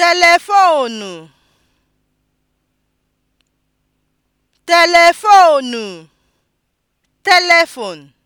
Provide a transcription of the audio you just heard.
telefoonu telefoonu (telephone)